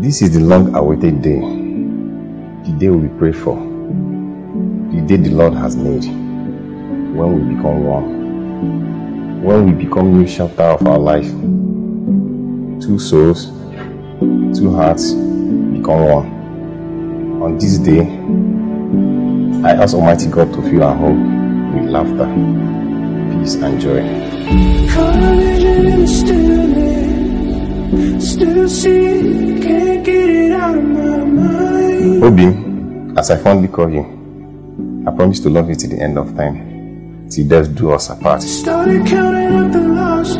This is the long awaited day, the day we pray for, the day the Lord has made, when we become one, when we become new chapter of our life, two souls, two hearts, gone on. On this day, I ask Almighty God to fill our home with laughter, peace, and joy. Obi, as I fondly call you, I promise to love you till the end of time, till death do us apart. Started counting up the losses,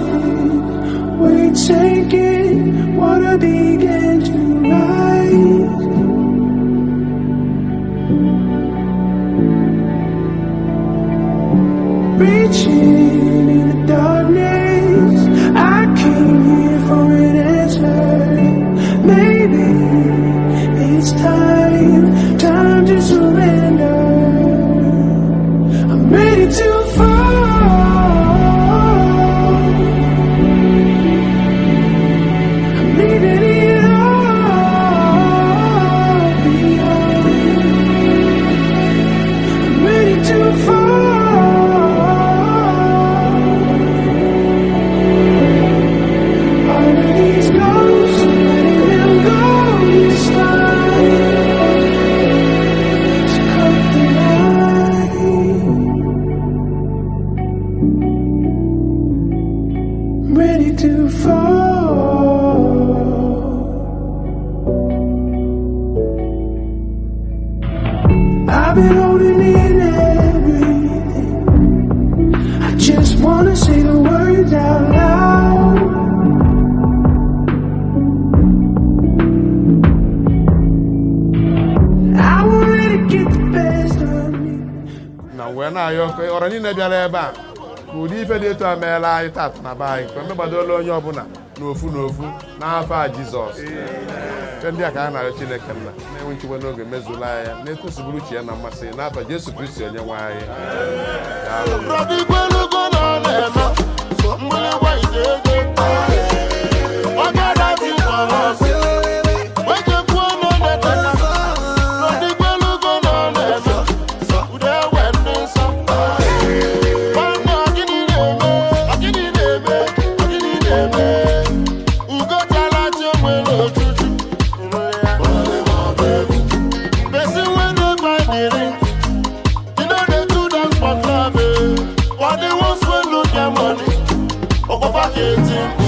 we take it, wanna be Reaching in the darkness ọrọ niile bịara ebe a ka ụdị ife dị etu a meela anyị tat na be anyị mgbe mmegbadoola onye ọbụla n'ofu n'ofu n'afọ a jizọs ife ndị a ka a na-arịọ chineke nna na-enwe nchekwa n'oge mezula ya na-etosiburu uche ya na mmasị n'afọ jesu kristi onye nwanyị marketing.